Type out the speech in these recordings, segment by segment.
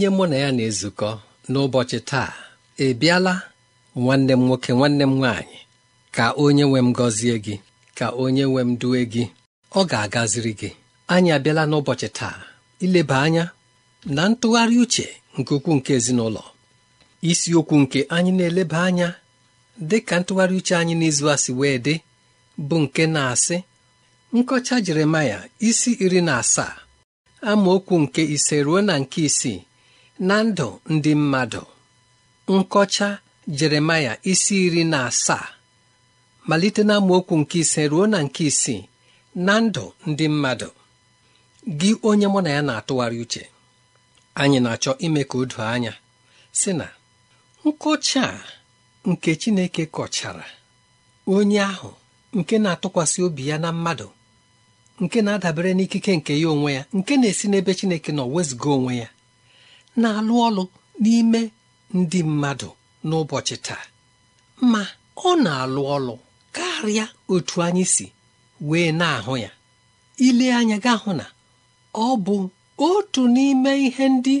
onye mụ na ya na-ezukọ n'ụbọchị taa ị bịala nwanne m nwoke nwanne m nwaanyị ka onye nwe m gọzie gị ka onye nwe m duwe gị ọ ga-agaziri gị anyị abịala n'ụbọchị taa ileba anya na ntụgharị uche nke ukwuu nke ezinụlọ isiokwu nke anyị na-eleba anya dị ka ntụgharị uche anyị n'izu a asị wee dị bụ nke na-asị nkọcha jeremaya isi iri na asaa amaokwu nke ise ruo na nke isii na ndụ ndị mmadụ nkọcha jeremaya isi iri na asaa malite na amaokwu nke ise ruo na nke isii na ndụ ndị mmadụ gị onye mụ na ya na-atụgharị uche anyị na-achọ ime ka o doo anya sị na nkọcha nke Chineke kọchara onye ahụ nke na-atụkwasị obi ya na mmadụ nke na-adabere n'ikike nke ya onwe ya nke na-esi n'ebe Chineke nọ wezụga onwe ya na-alụ ọlụ n'ime ndị mmadụ n'ụbọchị taa ma ọ na-alụ ọlụ karịa otu anyị si wee na-ahụ ya ile anya ga hụ na ọ bụ otu n'ime ihe ndị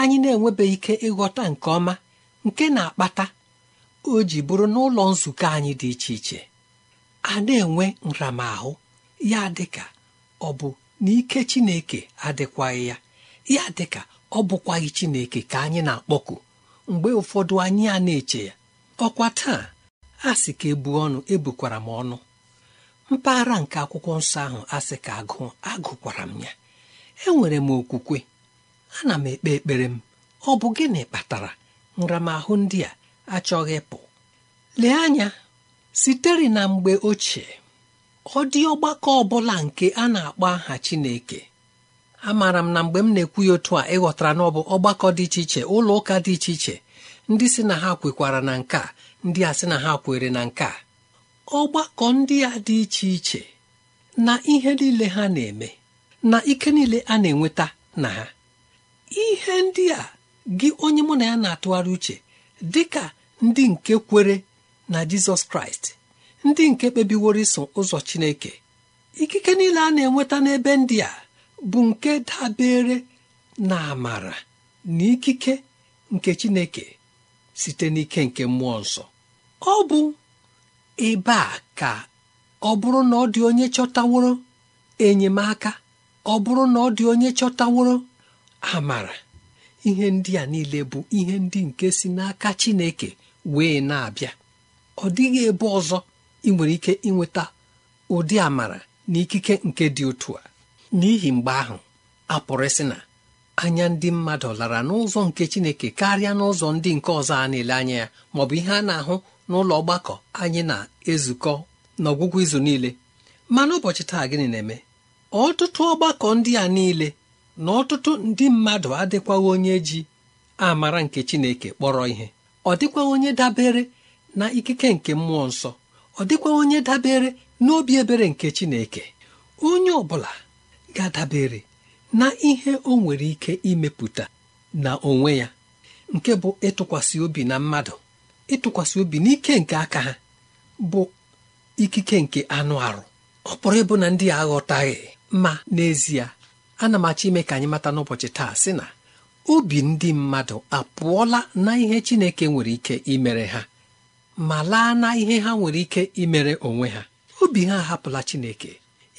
anyị na-enwebeghị ike ịghọta nke ọma nke na-akpata o ji bụrụ n'ụlọ nzukọ anyị dị iche iche a na-enwe nramahụ ya dịka ọ bụ n'ike Chineke adịkwaghị ya ya dịka ọ bụkwaghị Chineke ka anyị na-akpọku mgbe ụfọdụ anyị a na-eche ya ọkwa taa a sị ka ebu ọnụ ebukwara m ọnụ mpaghara nke akwụkwọ nsọ ahụ asị ka agụ agụkwara m ya enwere m okwukwe ana m ekpe ekpere m ọ bụ gịnị kpatara nramahụ ndị a achọghị ịpụ lee anya sitere na mgbe ochie ọ dị ọgbakọ ọbụla nke a na-akpọ aha Chineke amaara m na mgbe m na-ekwu ya otu a ịghọtara na ọ bụ ọgbakọ dị iche iche ụlọ ụka dị iche iche ndị si na ha kwekwara na nke ndị a sị na ha kwere na nke ọgbakọ ndị a dị iche iche na ihe niile ha na-eme na ike niile a na-enweta na ha ihe ndị a gị onye mụ na ya na-atụgharị uche dị ka ndị nke kwere na jizọs kraịst ndị nke kpebiworo iso ụzọ chineke ikike niile a na-enweta n'ebe ndị a bụ nke dabere na amara na ikike nke Chineke site n'ike nke mmụọ nsọ ọ bụ ebe a ka ọ bụrụ na ọ dị onye chọtaworo enyemaka ọ bụrụ na ọ dị onye chọtaworo amara ihe ndị a niile bụ ihe ndị nke si n'aka Chineke wee na-abịa ọ dịghị ebe ọzọ ị nwere ike ịnweta ụdị amara na ikike nke dị otu a n'ihi mgbe ahụ a pụrụ ịsị na anya ndị mmadụ lara n'ụzọ nke chineke karịa n'ụzọ ndị nke ọzọ a na-ele anya ya maọbụ ihe a na-ahụ n'ụlọ ọgbakọ anyị na-ezukọ n'ọgwụgwụ izu niile mana ụbọchị taa gịnị na-eme ọtụtụ ọgbakọ ndị a niile na ọtụtụ ndị mmadụ adịkwaghị onye ji amara nke chineke kpọrọ ihe ọ dịkwaghị onye dabere na ikike nke mmụọ nsọ ọ dịkwaghị onye dabere n'obi ebere nke chineke onye ọ bụla ga-adabere na ihe o nwere ike imepụta na onwe ya nke bụ ịtụkwasị obi na mmadụ ịtụkwasị obi n'ike nke aka ha bụ ikike nke anụ arụ ọ pụrụ ịbụ na ndị aghọtaghị ma n'ezie ana m achọ ime ka anyị mata n'ụbọchị taa sị na obi ndị mmadụ apụọla na ihe Chineke nwere ike imere ha ma laa na ihe ha nwere ike imere onwe ha obi ha ahapụla Chineke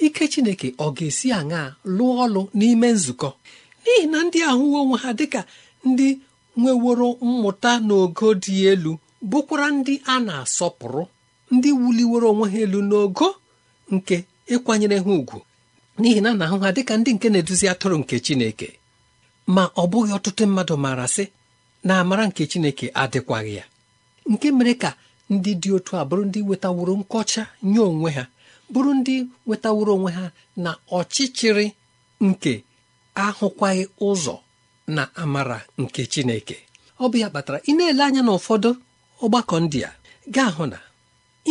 ike chineke ọ ga-esi aṅaa lụọ ọlụ n'ime nzukọ n'ihi na ndị ahụwo onwe ha dịka ndị nweworo mmụta n'ogo dị elu bụkwara ndị a na-asọpụrụ ndị wuliworo onwe ha elu n'ogo nke ịkwanyere ha ùgwù n'ihi na na-ahụ ha dịka ndị nke na-eduzi atụrụ nke chineke ma ọ bụghị ọtụtụ mmadụ maara sị na amara nke chineke adịkwaghị ya nke mere ka ndị dị otu a bụrụ ndị wetaworo nkọcha nye onwe ha bụrụ ndị wetaworo onwe ha na ọchịchịrị nke ahụkwaghị ụzọ na amara nke Chineke ọ bụ ya kpatara ị na-ele anya na ụfọdụ ọgbakọ ndị a ga-ahụ na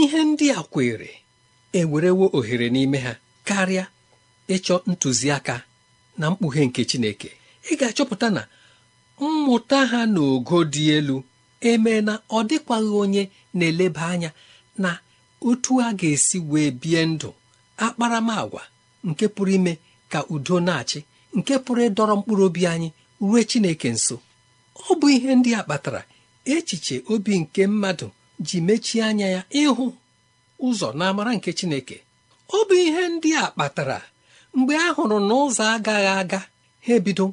ihe ndị a kwere ewerewo ohere n'ime ha karịa ịchọ ntụziaka na mkpughe nke Chineke ị ga-achọpụta na mmụta ha n'ogo dị elu emee na ọ dịkwaghị onye na-eleba anya na otu a ga-esi wee bie ndụ akparamagwa nke pụrụ ime ka udo na-achị nke pụrụ ịdọrọ mkpụrụ obi anyị ruo Chineke nso ọ bụ ihe ndị a kpatara echiche obi nke mmadụ ji mechie anya ya ịhụ ụzọ n'amara nke Chineke ọ bụ ihe ndị a kpatara mgbe a hụrụ na ụzọ agaghị aga ha ebido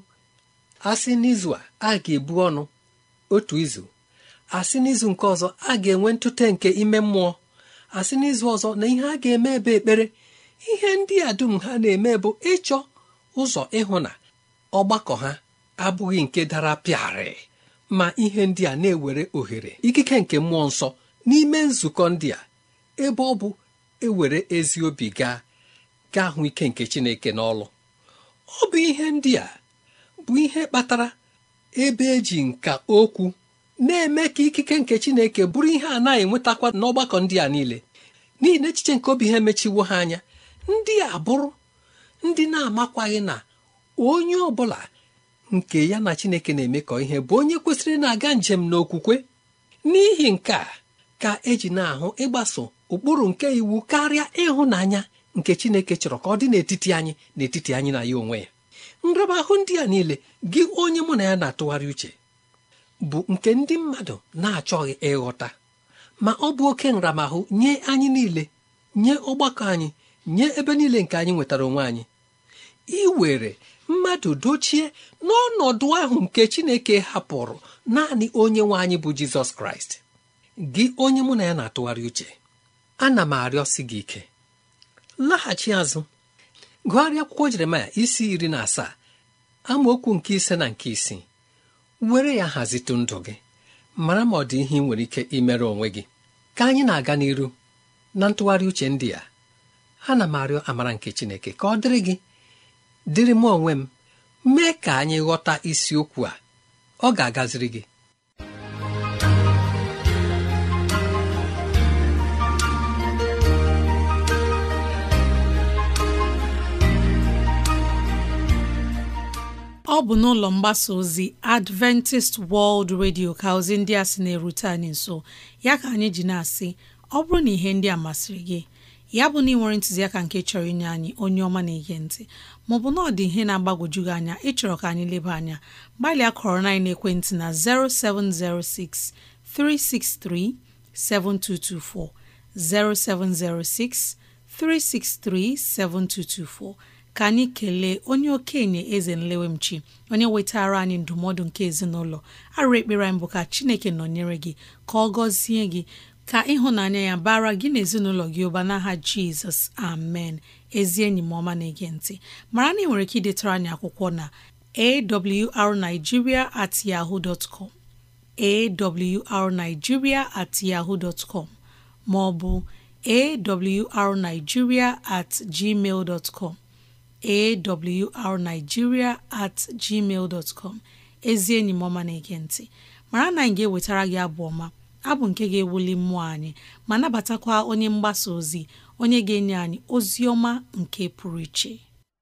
asị n'izu a a ga-ebu ọnụ otu izu asị n'izu nke ọzọ a ga-enwe ntụte nke ime mmụọ asị n'izu ọzọ na ihe a ga-eme ebe ekpere ihe ndị a dum ha na-eme bụ ịchọ ụzọ ịhụ na ọgbakọ ha abụghị nke dara pịarị ma ihe ndị a na-ewere ohere ikike nke mmụọ nsọ n'ime nzukọ ndị a ebe ọ bụ ewere ezi obi gaa gaa hụ ike nke Chineke n'ọlụ ọ bụ ihe ndị a bụ ihe kpatara ebe eji nka okwu na-eme ka ikike nke Chineke bụrụ ihe a na-enwetakwa n'ọgbakọ ndị a niile n'ihi na echiche nke obi ha emechiwo ha anya ndị a bụrụ ndị na-amakwaghị na onye ọ bụla nke ya na chineke na-emekọ ihe bụ onye kwesịrị na-aga njem n'okwukwe n'ihi nke a ka eji na-ahụ ịgbaso ụkpụrụ nke iwu karịa ịhụnanya nke chineke chọrọ ka ọ dị n'etiti anyị n'etiti anyị na ya onwe ya nraba ahụ ndị a niile gị onye mụ na ya na-atụgharị uche bụ nke ndị mmadụ na-achọghị ịghọta ma ọ bụ oke nramahụ nye anyị niile nye ọgbakọ anyị nye ebe niile nke anyị nwetara onwe anyị were mmadụ dochie n'ọnọdụ ahụ nke Chineke hapụrụ naanị onye nwe anyị bụ Jizọs Kraịst gị onye mụ na ya na-atụgharị uche ana m arịọsi gị ike laghachi azụ gụgharịa akwụkwọ Jeremaya isi iri na asaa amaokwu nke ise na nke isii were ya hazitu ndụ gị mara ma ọ dị ihe ị nwere ike imere onwe gị ka anyị na-aga n'iru na ntụgharị uche ndị a ana m arịọ amara nke Chineke ka ọ dịrị gị dịrị m onwe m mee ka anyị ghọta isiokwu a ọ ga-agaziri gị ọ bụ n'ụlọ mgbasa ozi Adventist World Radio ka ozi ndị a sị na-erute anyị nso ya ka anyị ji na-asị ọ bụrụ na ihe ndị a masịrị gị ya bụ na ị nwere ntụziaka nke chọrọ inye anyị onye ọma na-ege ntị maọbụ na ọ dị ihe na-agbagwoju gị anya ịchọrọ ka anyị leba anya gbalịa kọrọ na ekwentị na 0706 363 7224 0706 363 7224 ka anyị kelee onye okenye eze nlewemchi onye wetara anyị ndụmọdụ nke ezinụlọ arụ ekpere anyị bụ ka chineke nọnyere gị ka ọ gọzie gị ka ịhụnanya ya bara gị na ezinụlọ gị ụba n'aha jizọs amen ezi enyi m ọma na-ege ntị mara na ị nwere ike idetara anyị akwụkwọ na arigiria at yahoo dot arigiria at yahoo dot maọbụ ma ọ bụ awrnigeria at gmail dot com awrnigeria at gmail dot ezi enyi m ọma na-ege nti mara na anyị ga-ewetara gị abụ ọma abụ nke ga-ewuli mmụọ anyị ma nabatakwa onye mgbasa ozi onye ga-enye anyị ozi ọma nke pụrụ iche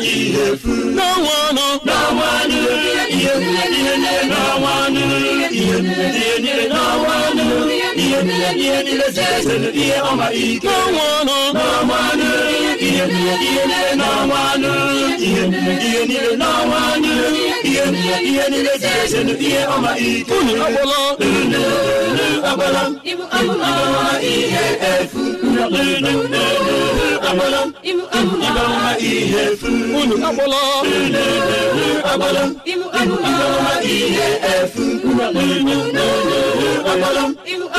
ihe ihe ihe ihe niile ihe niile ọma ike n'ọnwanụ ihe niile ihe niile n'ọnwanụ ihe niile ihe niile ihe niile ihe niile ihe ọma ike unu agbala unu agbala ibu ihe efu unu agbala ihe efu unu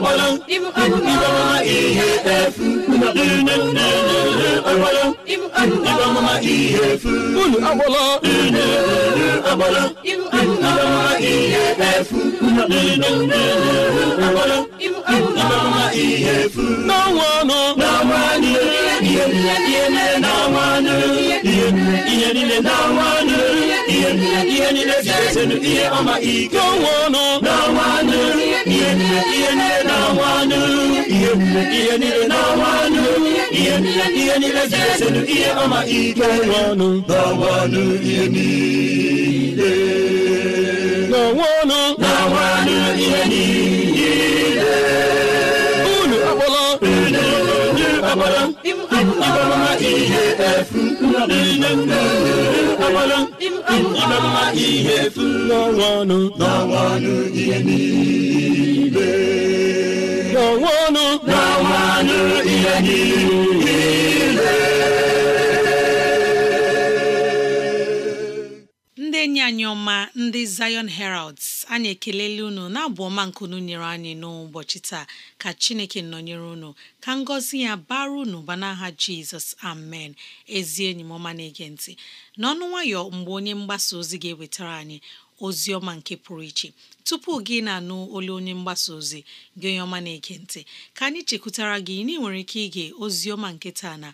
Ị ịbụ ihe efu unu agbala n'ọnwa anọ ihe niile n'ọnwa anọ ihe niile zere ihe ọma ike n'ọnwa anọ ihe niile n'ọnwa ihe niile ihe niile n'ọnwa ọnụ ihe niile ihe niile ji ihe ọma ike n'ọnụ n'ọnwa ihe niile n'ọnwa anụ ihe niile unu akpọla unu akpọla ịbama ihe efu ihe efu n'ọnwa anụ ihe niile onwe ọnụ na ihe ndị enyi anyị ọma ndị Zion Heralds anyị ekelela unu na-abụ ọma nkunu nyere anyị n'ụbọchị taa ka Chineke nọnyere unu ka ngọzi ya bara unu ba n'aha Jizọs amen ezi enyi m ọma na-ege ntị n'ọnụ nwayọ mgbe onye mgbasa ozi ga-ewetara anyị ozi ọma nke pụrụ iche tupu gị na-anụ olu onye mgbasa ozi gị onye ọma na-ege ntị ka anyị chekwutara gị na ị nwere ike ige ozi ọma nke taa na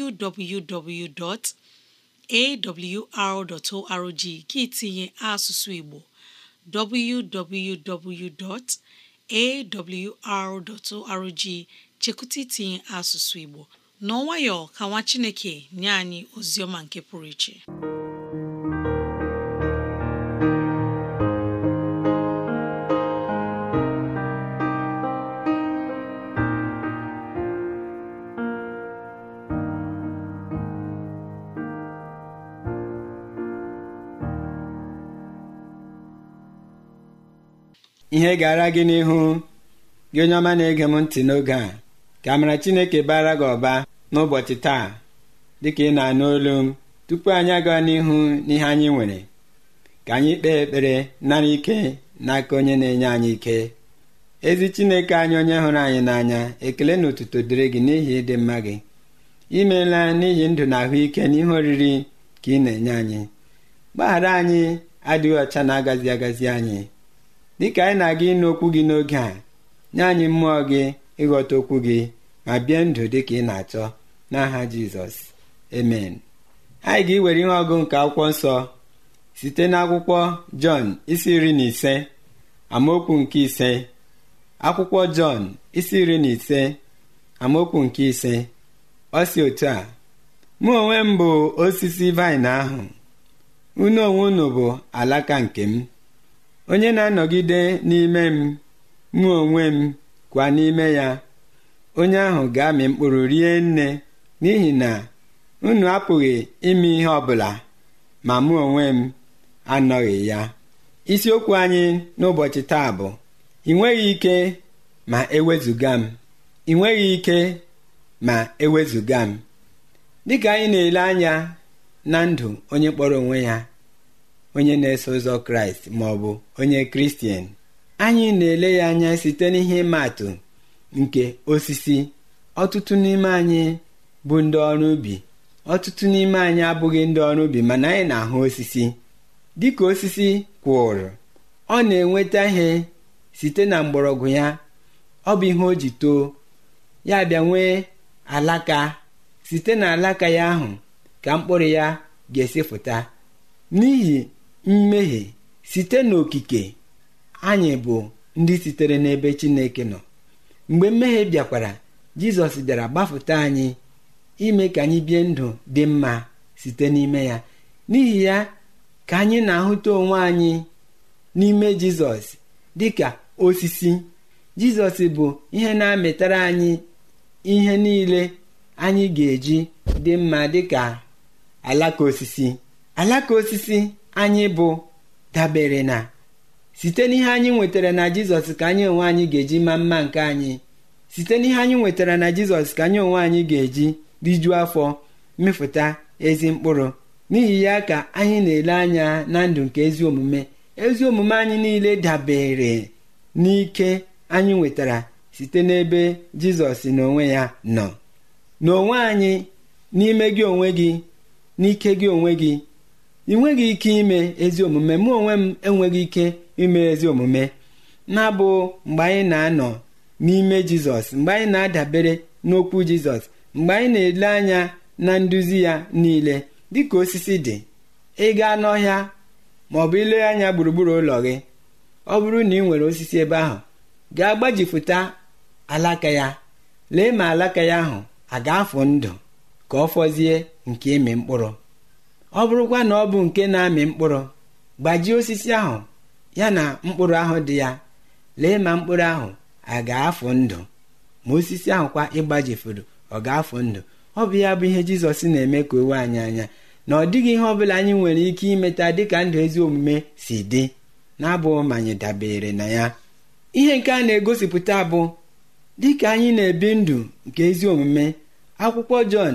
www.awr.org gị tinye asụsụ Igbo www.awr.org chekwụta itinye asụsụ Igbo n'ọnwayọ ka nwa Chineke nye anyị ozi ọma nke pụrụ iche ihe gara gị n'ihu gị onye ọma na-ege m ntị n'oge a ka mara Chineke bara gị ọba n'ụbọchị taa dịka ị na-anụ olu m tupu anyị aga n'ihu n'ihe anyị nwere ka anyị kpee ekpere nara ike n'aka onye na-enye anyị ike ezi Chineke anyị onye hụrụ anyị n'anya ekele na otuto dịrị gị n'ihi ịdị mma gị imeela n'ihi ndụ na ahụike n'ihe oriri ka ị na-enye anyị gbaghara anyị adịghị ọcha na-agazi agazi anyị dịka anyị na-aga ịnụ okwu gị n'oge a nye anyị mmụọ gị ịghọta okwu gị ma bie ndụ dịka ị na-achọ n'aha jizọs emen anyị ga-ewere ihe ọgụ nke akwụkwọ nsọ site n'akwụkwọ jọn isi iri na ise amaokwu nke ise akwụkwọ jọn isi iri na ise amaokwu nke ise ọ si otu a mụ onwe m bụ osisi vaịn ahụ unu onwe unu bụ alaka nke m onye na-anọgide n'ime m mụ onwe m kwa n'ime ya onye ahụ ga-amị mkpụrụ rie nne n'ihi na unu apụghị ime ihe ọbụla ma mụ onwe m anọghị ya isiokwu anyị n'ụbọchị taa bụ ị nweghị ike ma ewezụga m ị nweghị ike ma ewezuga m dịka anyị na-ele anya na ndụ onye kpọrọ onwe ya onye na-eso ụzọ kraịst ma ọ bụ onye kristian anyị na-ele ya anya site n'ihe ịma nke osisi ọtụtụ n'ime anyị bụ ndị ọrụ ubi ọtụtụ n'ime anyị abụghị ndị ọrụ ubi mana anyị na-ahụ osisi dịka osisi kwụrụ ọ na-enweta ihe site na mgbọrọgwụ ya ọ bụ ihe o ji too ya bịa nwee alaka site na alaka ya ahụ ka mkpụrụ ya ga-esi pụta n'ihi mmehie site n'okike anyị bụ ndị sitere n'ebe Chineke nọ mgbe mmehie bịakwara Jizọs bịara gbapụta anyị ime ka anyị bie ndụ dị mma site n'ime ya n'ihi ya ka anyị na-ahụta onwe anyị n'ime Jizọs dịka osisi Jizọs bụ ihe na-amịtara anyị ihe niile anyị ga-eji dị mma dịka alaka osisi alaka osisi anyị bụ dabere na site n'ihe anyị nwetara na jizọs ka anyị onwe anyị ga-eji ma mma nke anyị site n'ihe anyị nwetara na jizọs ka anyị onwe anyị ga-eji rijuo afọ mefụta ezi mkpụrụ n'ihi ya ka anyị na-ele anya na ndụ nke ezi omume ezi omume anyị niile dabere n'ike anyị nwetara site n'ebe jizọs na onwe ya nọ n'onwe anyị n'ime gị onwe gị n'ike gị onwe gị ị nweghị ike ime ezi omume mụ onwe m enweghị ike ime ezi omume na bụ mgbe anyị na-anọ n'ime jizọs mgbe anyị na-adabere n'okwu jizọs mgbe anyị na-ele anya na nduzi ya niile dịka osisi dị ị gaa n'ọhịa ma ọ bụ ile anya gburugburu ụlọ gị ọ bụrụ na ị nwere osisi ebe ahụ gaa gbajifụta alaka ya lee ma alaka ya ahụ a ga-afụ ndụ ka ọ fọzie nke ịmị mkpụrụ ọ bụrụkwa na ọ bụ nke na-amị mkpụrụ gbajie osisi ahụ ya na mkpụrụ ahụ dị ya lee ma mkpụrụ ahụ a ga-afụ ndụ ma osisi ahụ kwa ịgbajifuru ọ ga-afụ ndụ ọ bụ ya bụ ihe jizọs na-eme ka owe anyị anya na ọ dịghị ihe ọ bụla anyị nwere ike imeta dịka ndụ ezi omume si dị na-abụ ma anyị dabere na ya ihe nke a na-egosipụta bụ dịka anyị na-ebi ndụ nke ezi omume akwụkwọ jọn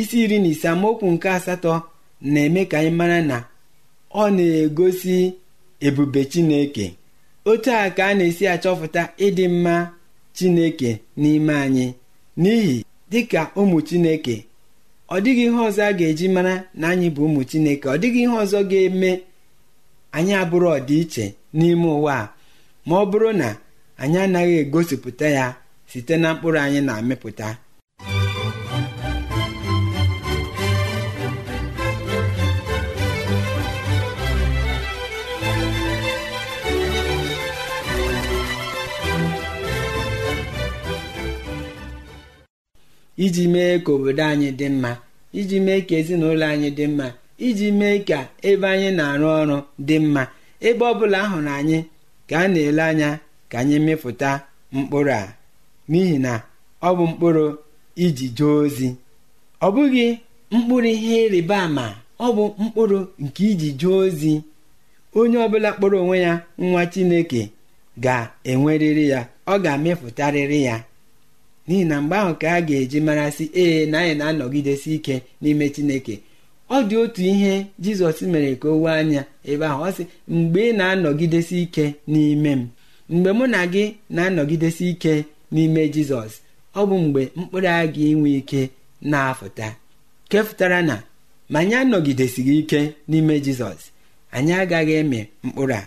isi iri na ise amaokwu nke asatọ na-eme ka anyị mara na ọ na-egosi ebube Chineke otu a ka a na-esi achọpụta ịdị mma Chineke n'ime anyị n'ihi dịka ụmụ Chineke ọ dịghị ihe ọzọ a ga-eji mara na anyị bụ ụmụ Chineke ọ dịghị ihe ọzọ ga-eme anyị abụrụ ọdịiche n'ime ụwa a ma ọ bụrụ na anyị anaghị egosipụta ya site na mkpụrụ anyị na-amịpụta iji mee ka obodo anyị dị mma iji mee ka ezinụlọ anyị dị mma iji mee ka ebe anyị na-arụ ọrụ dị mma ebe ọ bụla hụrụ anyị ka a na-ele anya ka anyị mịpụta mkpụrụ a n'ihi na ọ bụ mkpụrụ iji jee ozi ọ bụghị mkpụrụ ihe ịrịba ama ọ bụ mkpụrụ nke iji jee ozi onye ọbụla kpọrọ onwe ya nwa Chineke ga-enwerịrị ya ọ ga-amịpụtarịrị ya n'ihi na mgbe ahụ ka a ga-eji marasị ee na anyị na-anọgidesi ike n'ime chineke ọ dị otu ihe jizọs mere ka o wee anya ebe ahụ ọ sị mgbe ị na-anọgidesi ike n'ime m mgbe mụ na gị na-anọgidesi ike n'ime jizọs ọ bụ mgbe mkpụrụ a gị inwe ike na-afụta kefụtara na ma anyị anọgidesighị ike n'ime jizọs anyị agaghị eme mkpụrụ a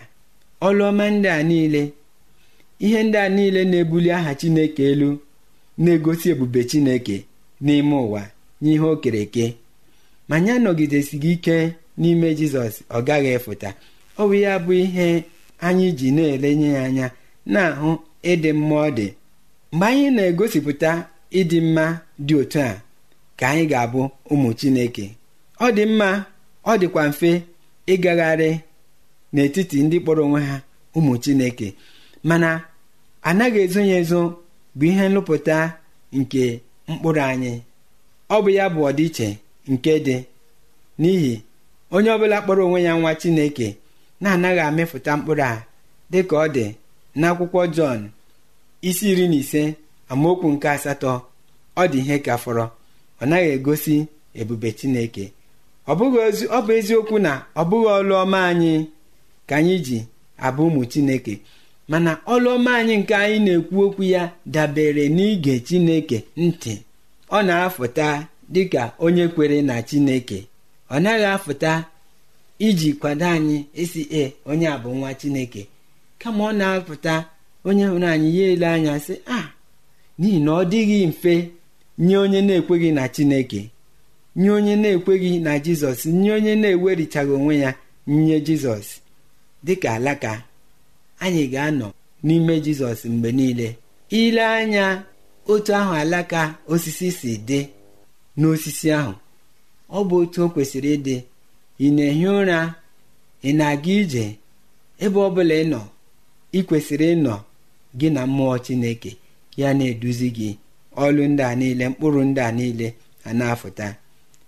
ọlụọma ndị a niile ihe ndị a niile na-ebuli aha chineke elu na-egosi ebube chineke n'ime ụwa n'ihe o kere eke ma anyị ike n'ime jizọs ọ gaghị efụta ọ bụ ya bụ ihe anyị ji na-elenye ya anya na-ahụ ịdị mma ọ dị mgbe anyị na-egosipụta ịdị mma dị otu a ka anyị ga-abụ ụmụ chineke ọ dị mma ọ dịkwa mfe ịgagharị n'etiti ndị kpọrọ onwe ha ụmụ chineke mana anaghị ezo ya ezo bụ ihe nlụpụta nke mkpụrụ anyị ọ bụ ya bụ ọdịiche nke dị n'ihi onye ọbụla kpọrọ onwe ya nwa chineke na-anaghị amịpụta mkpụrụ a dị ka ọ dị n'akwụkwọ jọn isi iri na ise amaokwu nke asatọ ọ dị ihe ka fọrọ ọ naghị egosi ebube chineke ọ bụ eziokwu na ọ bụghị ọlụ anyị ka anyị ji abụ ụmụ chineke mana ọlụọma anyị nke anyị na-ekwu okwu ya dabere n'ige chineke ntị ọ na-afụta dịka onye kwere na chineke ọ naghị afụta iji kwado anyị isi e onye a bụ nwa chineke kama ọ na afụta onye hụrụ anyị ya ele anya sị a n'ihi na ọ dịghị mfe nye onye na-ekweghị na chineke nye onye na-ekweghị na jizọs nye onye na-ewerichaghị onwe ya nye jizọs dịka alaka anyị ga-anọ n'ime jizọs mgbe niile ile anya otu ahụ alaka osisi si dị n'osisi ahụ ọ bụ otu o kwesịrị ịdị ị na-ehi ụra ị na-aga ije ebe ọ bụla ị nọ ị kwesịrị ịnọ gị na mmụọ chineke ya na-eduzi gị ọlụ ndị a niile mkpụrụ ndị a niile a na-afụta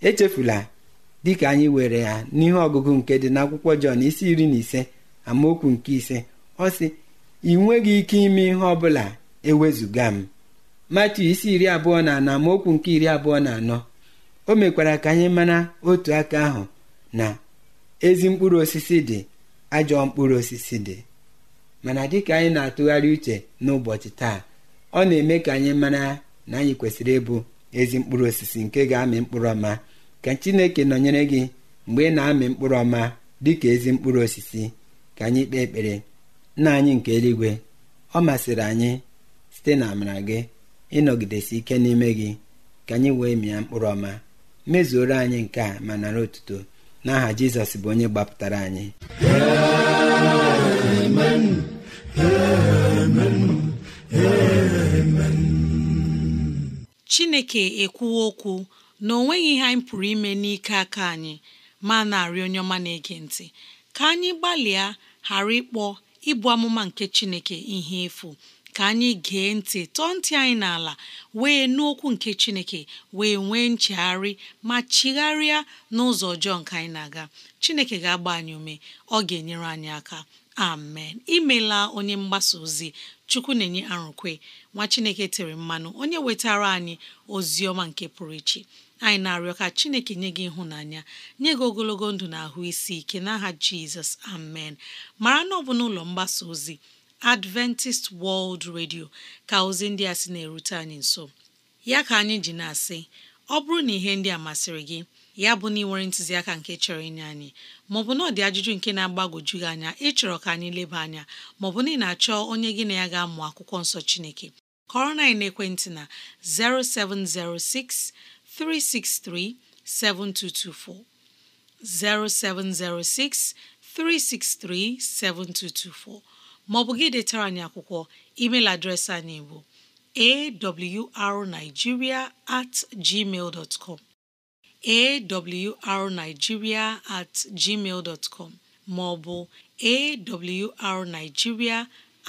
echefula dịka anyị were ya n'ihe ọgụgụ nke dị n'akwụkwọ Jọn isi iri na ise amaokwu nke ise ọ sị ị nweghị ike ime ihe ọ bụla ewezụga m matu isi iri abụọ na anọ amaokwu nke iri abụọ na anọ o mekwara ka anyị mara otu aka ahụ na ezi mkpụrụ osisi dị ajọ mkpụrụ osisi dị mana dịka anyị na-atụgharị uche n'ụbọchị taa ọ na-eme ka anyị mara na anyị kwesịrị ịbụ ezi mkpụrụ osisi nke ga-amị mkpụrụ ọma ka chineke nọnyere gị mgbe ị na-amị mkpụrụ ọma dịka ezi mkpụrụ osisi ka anyị kpee ekpere nna anyị nke eluigwe ọ masịrị anyị site na amara gị ịnọgidesi ike n'ime gị ka anyị wee mịa mkpụrụ ọma mezuoro anyị nke a ma nara otuto n'aha jizọs bụ onye gbapụtara anyị chineke ekwuwo okwu na ọ nweghị ihe anyị pụrụ ime n'ike aka anyị ma na onye ọma na-ege ntị ka anyị gbalịa ghara ịkpọ ịbụ amụma nke Chineke ihe efu ka anyị gee ntị tọọ ntị anyị n'ala wee n'okwu nke Chineke wee nwee nchegharị ma chigharịa n'ụzọ ọjọọ nke anyị na-aga Chineke ga-agba anyị ume ọ ga-enyere anyị aka amen imela onye mgbasa ozi Chukwu na-enye arụkwe nwa Chineke tere mmanụ onye wetara anyị ozi ọma nke pụrụ iche anyị na-arịọ ka chineke nye gị ịhụnanya nye gị ogologo ndụ na ahụ isi ike n'aha jizọs amen mara na ọ bụ n'ụlọ mgbasa ozi adventist world radio ka ozi ndị a sị na-erute anyị nso ya ka anyị ji na-asị ọ bụrụ na ihe ndị a masịrị gị ya bụ na ị nwere ntụziaka nke chọrọ inye anyị maọbụ na ọ dị ajụjụ nke na-agbagwoju gị anya ịchọrọ ka anyị leba anya maọbụ na ị na-achọ onye gị na ya ga-amụ akwụkwọ nsọ Chineke kọrọ na ekwentị na 0706 363 7224 0706 363 7224 maọbụ gị dị tara n'akwụkwọ. email adreesị anyị bụ awrnigeria at gmail dot com awrnigeria at gmail dot com maọbụ awrnigeria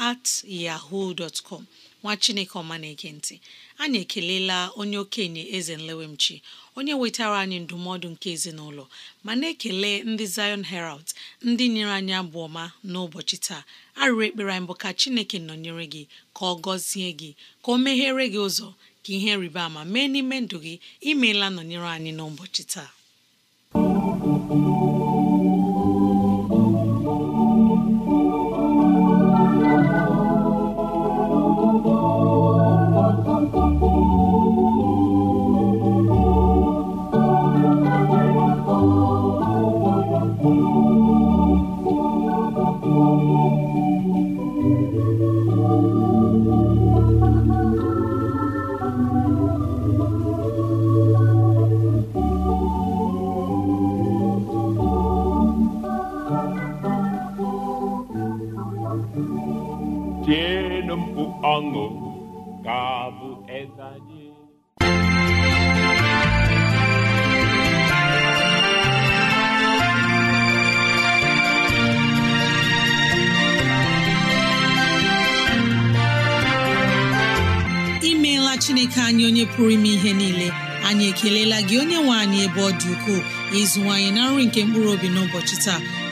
at yahoo dot com nwa chineke ọma na-ege ntị anyị ekelela onye okenye eze nlewemchi onye wetara anyị ndụmọdụ nke ezinụlọ ma na-ekele ndị Zion Herald ndị nyere anyị abụ ọma n'ụbọchị taa arịrị ekpere anyị bụ ka chineke nọnyere gị ka ọ gọzie gị ka o meghere gị ụzọ ka ihe rịba ama mee n'ime ndụ gị imeela nọnyere anyị n'ụbọchị taa amor, cabo imeela chineke anyị onye pụrụ ime ihe niile anyị ekelela gị onye nwe anyị ebe ọ dị ukwuu ịzụwanyị na nri nke mkpụrụ obi n'ụbọchị taa